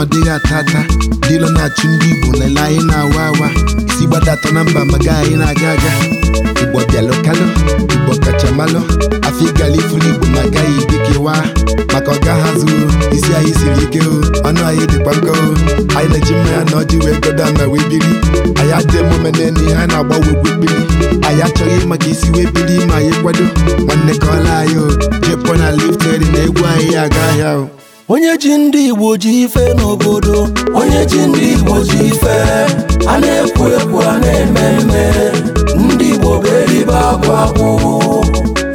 ọ ata ata dịlọ na-achụ ndị Igbo lele anyị na-awa awa si gbadata na mba maga anyị na-aga aga Igbo bịalụkalụ Igbo kachamalụ afọ ịgala ifuru Igbo ma agaghị dikewa maka ọga ha zuru isi anyị siri ike o ọnụ anyị dịkwa nkọ anyị na-eji mmanya na ọjị wee godo ama wee biri anyị adịghị emume na-enu ihe a na-agbawegwu kpili anyị achọghị maka isi wee biri ma anyị kwado nwanne ka ọla anyị o jepụ na lifted na egwu anyị ya aga ahịa o onye ji ndị Igbo ji ife n'obodo onye ji ndị Igbo ji ife a na-ekwu ekwu a na-eme eme ndị Igbo bụ akwa akwụ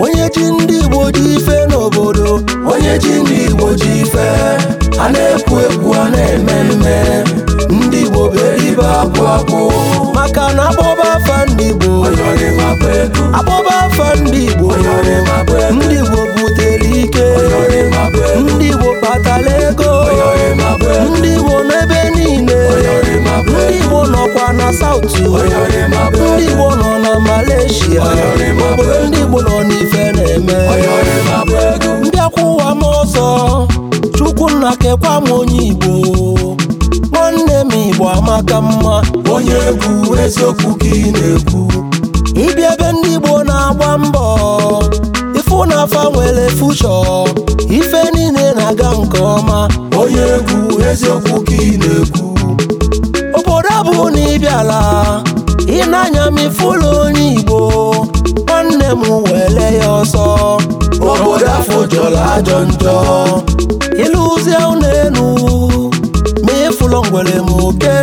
onye ji ndị Igbo ji ife n'obodo onye ji ndị Igbo ji ife a na-ekwu ekwu South ndị Igbo nọ na Malaysia obodo ndị Igbo nọ n'ife na-eme ndị akwụ ụwa n'ọzọ Chukwunna kekwa m onye Igbo nwanne m Igbo amaka mma onye egwu eziokwu ka ị na-ekwu ịbịa ebe ndị Igbo na-agba mbọ ifụ na afa nwere fushọ ife niile na-aga nke ọma onye egwu eziokwu ka ị ala ịnanya m ifulu onye Igbo nwanne m wele ya ọsọ obodo afọ jọrọ ajọ njọ ịlụzie ụlọ elu ma ịfụlọ ngwere m oke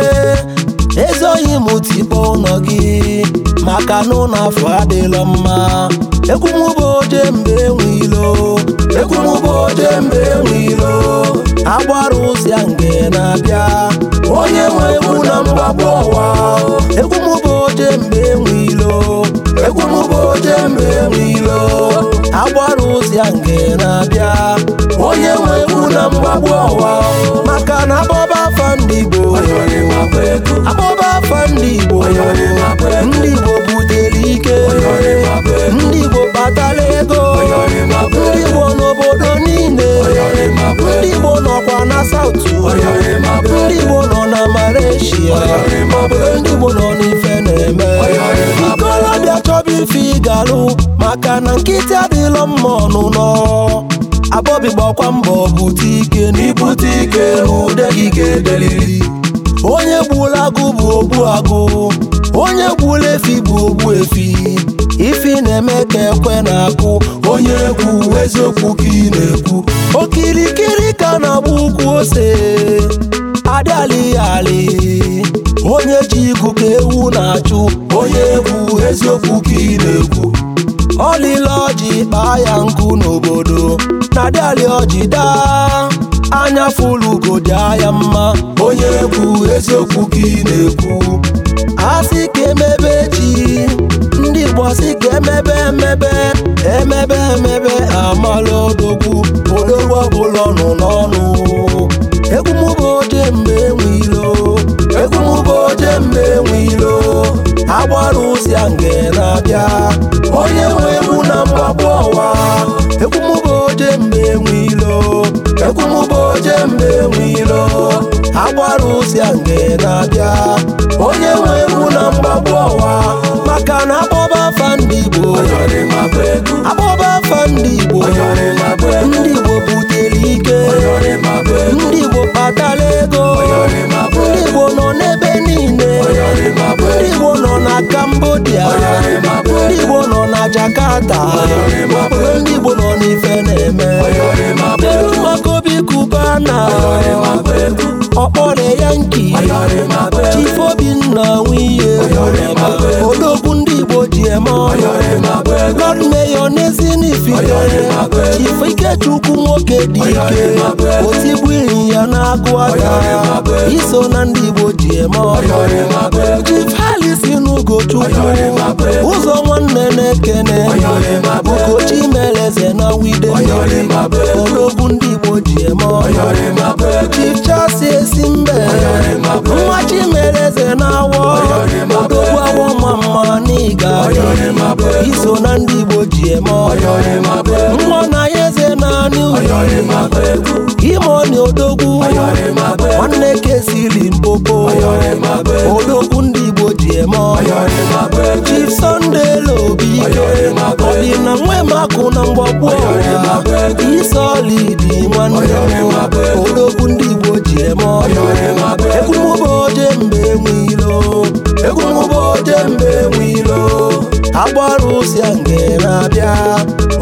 ezoghị m tipa ụnọ gị maka na ụlọ afọ adịla mma ekwumụba oje mgbe enwe ilo ekwumụba oje mgbe enwe ilo agbara ụzịa nge na-abịa ọbịa nke na-abịa onye nwe egwu na mgbagbu ọwa maka na akpọba afa ndị Igbo abọba afa ndị Igbo ndị Igbo butere ike ndị Igbo kpatara ego ndị Igbo n'obodo niile ndị Igbo nọkwa na South ndị Igbo nọ na Malaysia ndị Igbo nọ na ife ga-alụ maka na nkịtị adịlọ mma ọnụnọ abọbi gbakwa mbọ bute ike n'ibute ike n'ude gị ga-edeliri onye gbula agụ bụ ogbu agụ onye gbuola efi bụ ogbu efi ifi na-eme ka ekwe na-akụ onye egwu eziokwu ka ị na-ekwu okirikiri ka na-agba ukwu ose adịalịghị alị onye ji igu ka ewu na-achụ onye egwu eziokwu ka ị na-ekwu ọlịla ọjị kpaa ya nkụ n'obodo na dịalị ọjị daa anya fụlugo dị anya mma onye ekwu eziokwu ka ị na-ekwu asị ka emebe ji ndị Igbo asị emebe emebe emebe emebe amala odogwu odogwu oje mgbe enweilo agbara ụzi a mgbe na-abịa onye nwe ewu na mgbagbu ọwa maka na akpọba afa Igbo akpọba afa Igbo ndị Igbo butere ike ndị Igbo kpatara ego ndị Igbo nọ n'ebe niile ndị Igbo nọ na kambodia ndị Igbo nọ na Jakarta ndị Igbo nọ n'ife na-eme Ghana ọkpọre yanki Chief Obinna nwunye odogwu ndị Igbo ji eme ọrụ Lord Mayor Nezin Fidele Ikechukwu nwoke dị ike otigbu ya na-agụ aka iso na ndị Igbo ji eme ọrụ Chief Halisi n'Ugochukwu ụzọ nwanne na-ekene Ugochi meleze na wide odogwu ndị Igbo imoni odogwu nwanne kesiri mkpoko odogwu ndị igbo ji eme Chief Sunday na ọdịna nwemakụ na mgbagbo isolidi nwanne odogwu ndị igbo ji eme egwumụba oje mgbe enwe ilo egwumụba oje mgbe enwe ilo agbara nke na abịa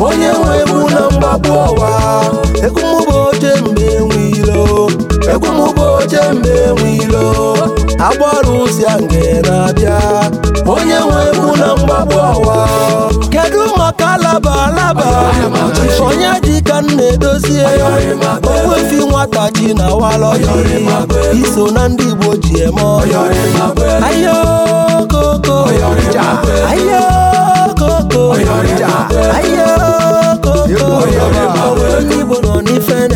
onye nwe egwu na mgbapụ ọwa ekwumụba oche mgbe enwe ilo ekwumụba oche mgbe enwe ilo agbara nke na abịa onye nwe egwu na mgbapụ ọwa kedu maka alaba alaba onye ka m na-edozie owefi nwata ji na walọji iso na ndị Igbo ji eme ọhịa koko ọ̀yọ̀rìjà ayé koko ọ̀yọ̀rìjà ayé koko ọ̀yọ̀rìjà owó yìí gbọ́dọ̀ nífẹ̀ẹ́.